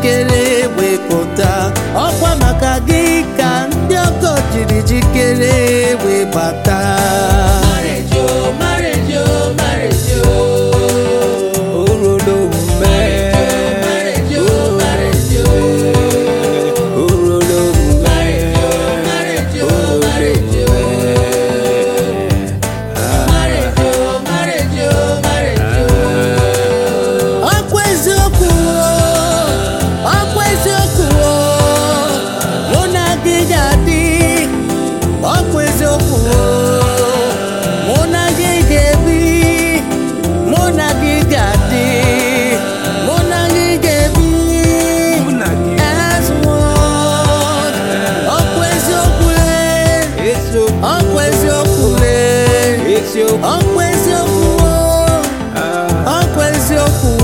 jikere wepụta ọkwa maka gị ka ndị ọkọ jiri jikere webata eziokwu lee ọkwa eziokwu ọkwa eziokwu